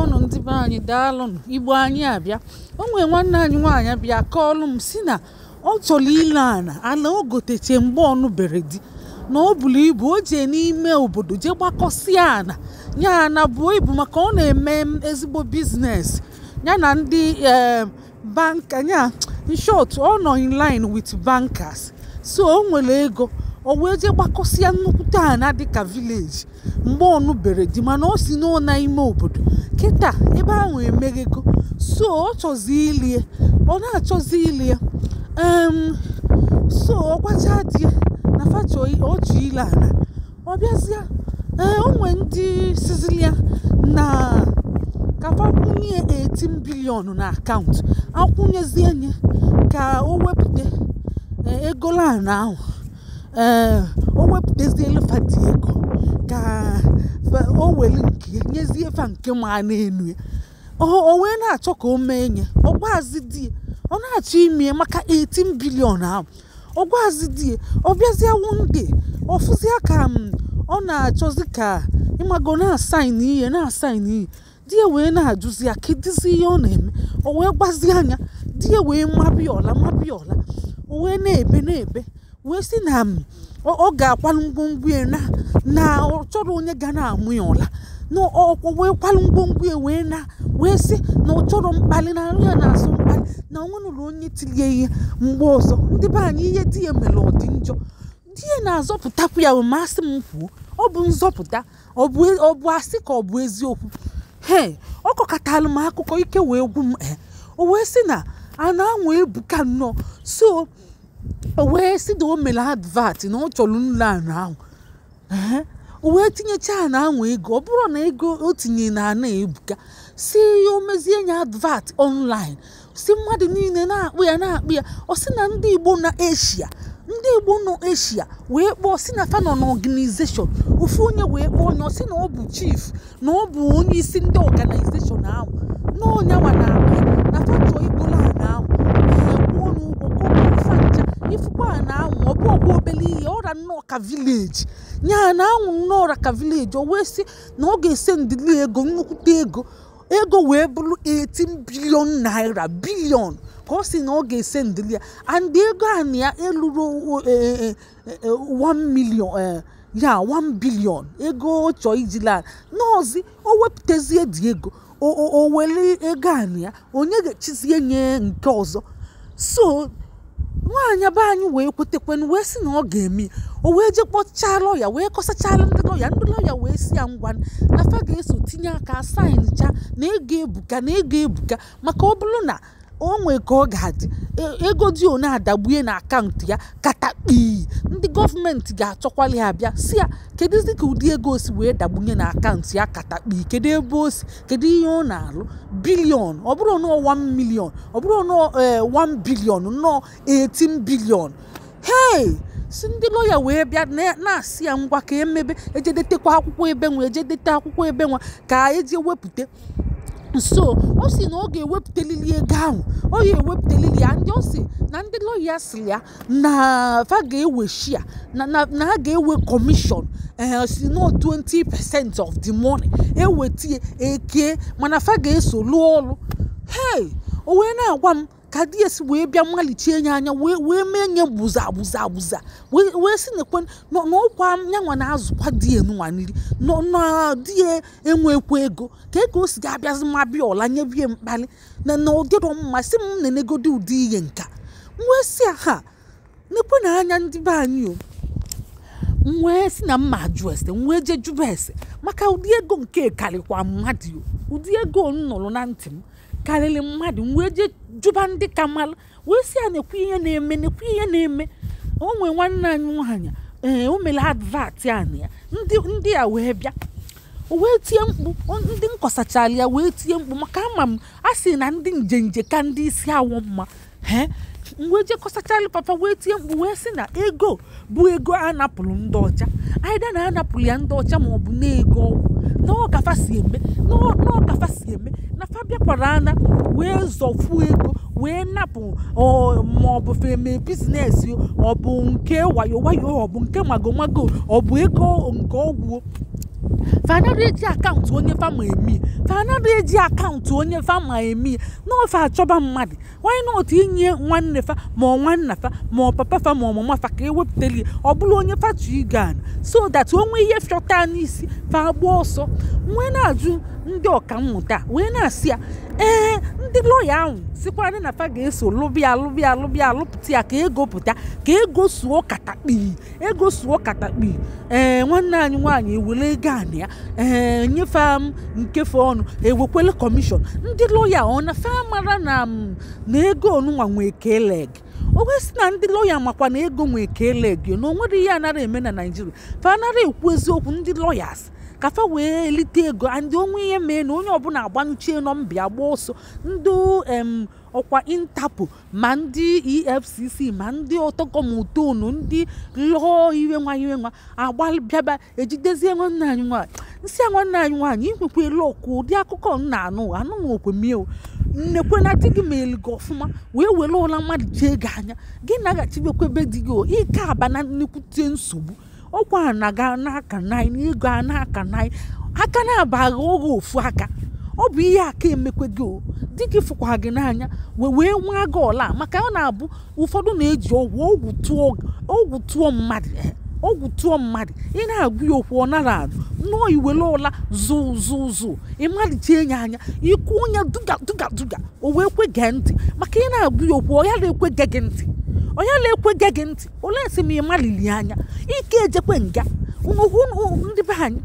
ọnụ ndị be anyị daalụnụ igbo anyị abịa o nwee nwanne anyị nwaanyị bịa kọọlụ m si na ọ chọrọ ile ana ala o goteche mgbe bere di na o bụrụ ibu o jee n'ime obodo jee gbakọsịa ana ya ana buo ibu maka ọ na-eme ezigbo biznes ya na ndị eh, banka ya nshọt ọ nọ in line with bankers so o nwere ego o wee jee gbakọsịa nnukwute na dịka vileji mgbe ọnụ bere dị mana o si n'ụna ime obodo kịta ebe ahụ emeghego so ọ chọzi ilie ọ na-achọzi ilie so ọ gwacha dị na facha oji ile ana ọ bịazịa e, onwe ndị sizilia na ka akwụnye 18 bilion na akaụntụ akwụnyezie nye ka o wepụta e, egolana ahụ ee eh, o wepụtazielu fati ego ka o were nke nyezie fa nke ma na-enu ya o wee na-achọ ka o mee nye ọgwazi di ọ na-achọ ime maka 18 bilion ahụ ọgwazi di ọ bịazie wunde ọfụzia ka mm, ọ na-achọzi ka ịmago na-asain ihe na-asain ihe di ya wee na-ajụzi ya kedizi ihe ọ na-eme o wee gbazi anya di ya wee mabịa ọla o wee na-ebe na-ebe wee si na hmm, ọ ga-akwalụ ngwongwo ya na ọ chọrọ onye ga na-amụ ya ụla na ọkwọ wee kwalụ ngwongwo ya wee na wee sị na ọ chọrọ mkpali na nri ya na-asụ mkpali na onwenụlọ onye tilie ihe mgbe ọzọ ndị be anyị ihe di ya mere ọ dị njọ di ya na-azọpụtakwu ya masị m kwuo ọ bụ nzọpụta e, ọ bụ asị ka ọ bụ eziokwu he ọ kọkatalụ m akụkọ ike wee gwu m e, o wee sị na a na-anwa ebuka nnọọ so wee si na o mere advat na ọ chọrọ nri anụ ahụ wee tinyecha ana ahụ ego ọ bụrụ na ego o tinyere na ana ebuka si ya o mezie ya advat online si mmadụ niile na-akpụ ya na-akpụ ya ọ na ndị Igbo na Asia ndị Igbo nọ Asia wee kpọọ si na fanọ na ọganizeshọn ofu onye wee kpọọ onye na ọ bụ chief na ọ bụ onye isi ndị ọganizeshọn ahụ na onye nwa na-akpụ na fachọ Igbo ana ahụ ifukwa a na-anwụ ọbụ bụ ọgwa obele ihe ọra nnọọ ka vileji nyaa na-anwụ nnọọ ọra ka vileji o wee sị na ọ ga-ese ndịli ego nnukwute ego ego wee bụrụ 18 bilion naira bilion ka ọ si na ọ ga-ese ndịli ya and ego a na ya eluru 1 e, e, e, million ya 1 bilion ego ọ chọọ ijila nọọzi o wepụtazie dị ego o were ego a na ya onye ga-echizie nye nke ọzọ so nwaanyị abụọ anyị wee kwetekwenu wee sị na ọ ga-eme o wee je kpọchaa lọya wee kọsachala ndị lọya ndị lọya wee si ya ngwa na fa ga-eso tinye aka saịncha na ego ebuka na ego ebuka maka ọ bụrụ na o nwee ka ọ ga-adị e, ego dị one adagbue na akaụntụ ya kata ndị gọọmenti ga-achọkwali ha bịa si ya kedụzi ka ụdị ego si wee dagbunye na akaụntụ ya katakpi kedu ebe osi, kedu ihe ọ na-alụ bilion ọ bụrụ nọọ 1 million ọ bụrụ nọọ 1 eh, bilion nọọ 18 bilion hei si ndị lọya wee bịa na-asị ya ngwa ka emebe ejedetekwa akwụkwọ ebe nwa ejedete akwụkwọ ebe nwa ka eji wepụta so ọ sị na ọ ga-ewepụtalili ego ahụ ọ ya ewepụtalili ya ndị ọ sị na ndi lọya sị ya na fa ga-ewe shia na ha ga-ewe kọmishọn eh, si no 20 percent of the money ewetie eke mana fa ga-eso lụọ ọrụ hey o wee na-agwa m ka esi wee bịa mmalichie ya anya wee mee nye buza buza buza wee si nekwe n'ọkwa yanwa na-azụkwa di nwa nri na di e, enwekwa ego ka ego o si ga-abịazi ma bịa ọla nye bie mkpali na na ụdịrọ mma si m na-enegodi ụdị ihe nka wee si ha nekwe na anya ndị be anyị o wee si na mma ajụ ese wee jee jụba ese maka ụdị ego nke karịkwa mmadụ ụdị ego m na ntị m karịrị mmadụ wee jee jụba ndị ka mmalụ wee si a na-ekwu ihe na-eme na-ekwu ihe na-eme o nwee nwanne anyị nwaanyị ee o mere advat ya ya ndị a wee bịa wee tie mkpu ndị nkọsachara ya wee tie mkpu maka ama m a sị na ndị njenje ka ndị isi awọ mma wee jekọsachalụ papa wee tie mkpu wee sị na ego bụ ego a napụrụ ndị ọcha aida na anapụrụ ya ndị ọcha ma ọ bụ na-ego ọgwụ n'ọkafa si eme si eme na fa bịakwara ana wee zọfuo ego wee napụ ma ọ bụ feme bizines ọ bụ nke wayo wayo ọ bụ nke mago mago ọ bụ ego nke ọgwụ fanado eji akaụntụ onye fama emi na eji akaụntụ onye fama emi n'ofe achọba mmadụ nwanyị na inye nwanne fa ma nwanna fa ma papa fa ma mama fa ka ewepụtali ọ bụrụ onye fatu igan so that onwe ihe fiọta n'isi fa agba ọsọ wee na-ajụ ndị mmụta wee na-asị ya ee eh, ndị lọya ahụ sikwarị na fa ga-eso lụbịa lụbịa lụbịa lụpụta ya ka egopụta pụta ka egosuo katakpi ego katakpi ee nwanne anyị nwaanyị ewele ego ana ya ee nyefe m nkefe ọnụ ewekwele kọmishọn ndị lọya ọ na fa mara na na ego onụnwa nwee keleg owesi na ndị lọya makwa na ego nwee keleg na onwere ihe anara eme na naijiria fa anara ekwu eziokwu ndị lọyas kafa wee lite ego ndị onwe ihe mee na onye ọbụla agbanyụchie nọmbịa gba ọsọ ndị ọkwa intapụ ma ndị efcc ma ndị ọtọkọmtonu ndị lụọ iwe nwa iwe nwa agbabịaba ejidezie nwanne anyị nwaanyị nsị a nwanne anyị nwaanyị elu ọkụ ụdị akụkọ nna anụ anụ anụghị okwemiewu nnekwana di gị ma eligo ọfụma wee were ụla mmadụ jee gị anya gị naghachibekwebe di gị ike aba na nnekwute nsogbu ọkwa na-aga n'aka naanị ịga n'aka naanị aka na-abaghị oge ofu aka ọ bụ ihe aka emekwe gị o dị gị fụkwa gị n'anya wee wee nwa gị ọla maka ọ na-abụ ụfọdụ na-eji ọgwụ ọgwụ tụọ mmadụ eh, ọgwụ tụọ mmadụ ị na-agụ ya okwu ọ nara azụ nnọọ iwere ụla zuu zuu zụụ ịmalite enye anya ikwu onye duga duga duga o wee kwe gee ntị maka ị na-agụ ya okwu ọ ya na-ekwe gee gị ntị onye na-ekwega gị ntị ole si m ịmalili anya ike ejekwe nga ndị be anyị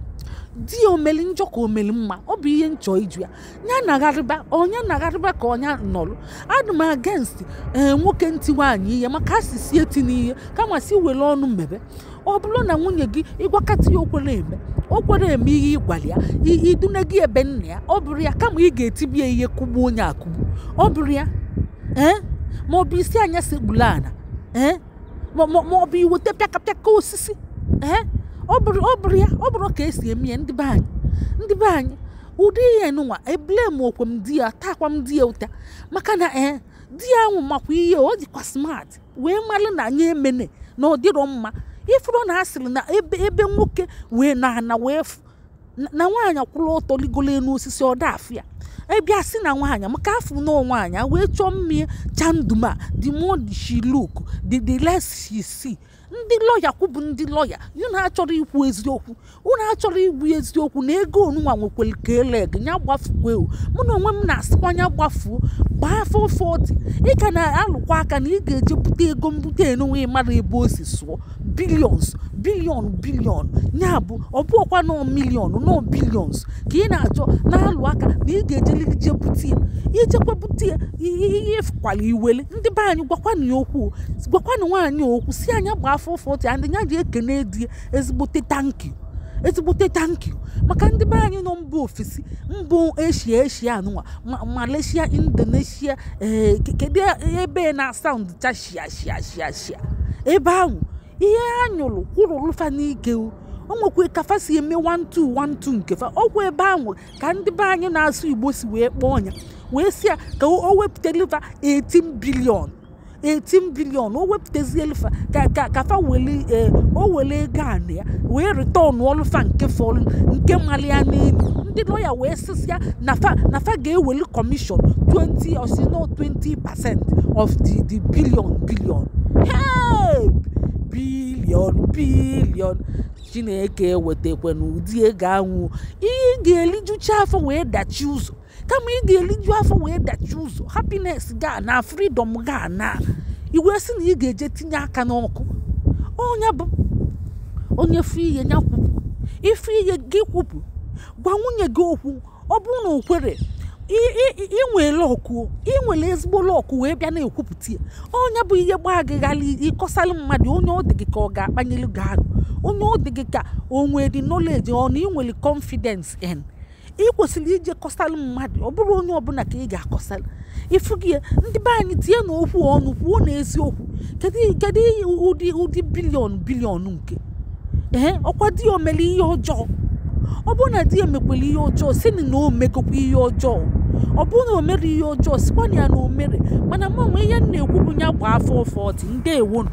di omeli njọ ka omeli mma ọ bụ ihe nchọ iju ya ya nagharịba onye nagharịba ka onye nọrụ adụ m agenst ee eh, nwoke ntị nwaanyị ihe maka si eti n'ihe kama si were ọnụ mmebe ọ bụrụ na nwunye gị ịgwakọta ya okwere eme okwere eme ihe ịgwara ya idune gị ebe nna ya ọ bụrụ ya kama ị ga-etibie ihe kụgbuo onye akụgbu ọ bụrụ ya ee eh, ma ọ bụ isi anya segbula ala ma ọ bụ iwu tepịakapịaka osisi ee ọ bụrụ ya ọ bụrụ ka esi eme ya ndị be anyị ndị be anyị ụdị ihe nụnwa eblem okwe m di ya takwa m di ya ụta maka na ee di ya nwụ makwa ihe ọ dịkwa smart wee malụ na nye emene na ọ dịrọ mma ifuru na asịrị na ebe ebe nwoke wee na ana wee na nwaanyị akwụla ọtọ ligolo elu osisi ọ ebia si na nwaanyị maka fụ na nwaanyị wee chọọ mmiri chanduma the more she look the the less she see ndị lọya kwụbụ ndị lọya unu achọrọ ikwu eziokwu unu achọrọ igbu eziokwu na ego onuwa nwekwere ka eleg ya gbafuo mụ na onwe m na-asịkwa ya gbafuo gbaa afọ 40 ị ka na-alụkwa aka na ị ga-eje bute ego mbute enwe mara ebe o si sụọ bilions bilion bilion ya bụ ọbụọkwa nọ milion nọ bilions ka ị na-achọ na-alụ aka na ị ga-ejelije bute ya ijekwa bute ya ihe fụkwala iwele ndị be anyị gwakwana okwu gwakwana nwaanyị okwu si anya gbaa afọ ụfụ otu nya ji ekene di ezigbote tanki ezigbote tanki maka ndị be anyị nọ mba ofesi mba eshia eshia anụnwa malaysia indonesia ee eh, kedu ebe eh, na saụnd cha ebe ahụ eh, ihe ha nyụrụ kwụrụlụfa n'ike o nwekwa kafa si eme 1212 nke fa ọgwụ ebe ahụ ka ndị be anyị na-asụ igbo si wee kpọọ ọnya wee si ya ka o wepụta liva 18 bilion 18 bilion o wepụtazie elfa ka fa eh, o wele ego ya wee return ọlụfa nke fọlụ nke mali ya n'elu ndị lọya wee sịsịa na fa ga-eweli kọmishọn 20 or no 20 of the the billion billion bilion billion billion chineke wetakwa n'ụdị ego anwụ ihe ga-elijucha afọ wee dachi ụzọ kama ị ga-eliju afọ wee dachi ụzọ hapines ga na fridọm ga na iwe sị na ị ga-eje tinye aka n'ọkụ ọnya bụ onye fụ ihe ya kwupụ ife ihe gị kwupụ gwa nwunye gị okwu ọ bụrụ na o kwere inwere ọkụ inwere ezigbo ọkụ wee bịa na-ekwupụta ya onye bụ ihe gbaa gị ghara ịkọsalụ mmadụ onye ọ dị gị ka ọ ga-akpanyelu gị arụ onye ọ dị gị ka o nwere knowledge ọ na inwere confidence en ị kwesịrị ije kọsalụ mmadụ ọ bụrụ onye ọbụla ka ị ga-akọsalụ ịfụ gị ya ndị be anyị tie na okwu ọnụ kwuo na eziokwu kedu ụdị ụdị bilion bilion nke ee ọkwa di ya omere ihe ọjọọ ọ bụrụ na di ya mekwere ihe ọjọọ si na o megokwa ihe ọjọọ ọ bụrụ na o mere ihe ọjọọ sikwa na ya na o mere mana mmanwe ihe m na-ekwu bụ ya gba afọ ọfọ ọtị ndewonu